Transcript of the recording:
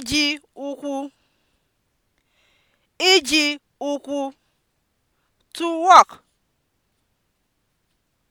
iji ụkwụ iji ụkwụ (to walk)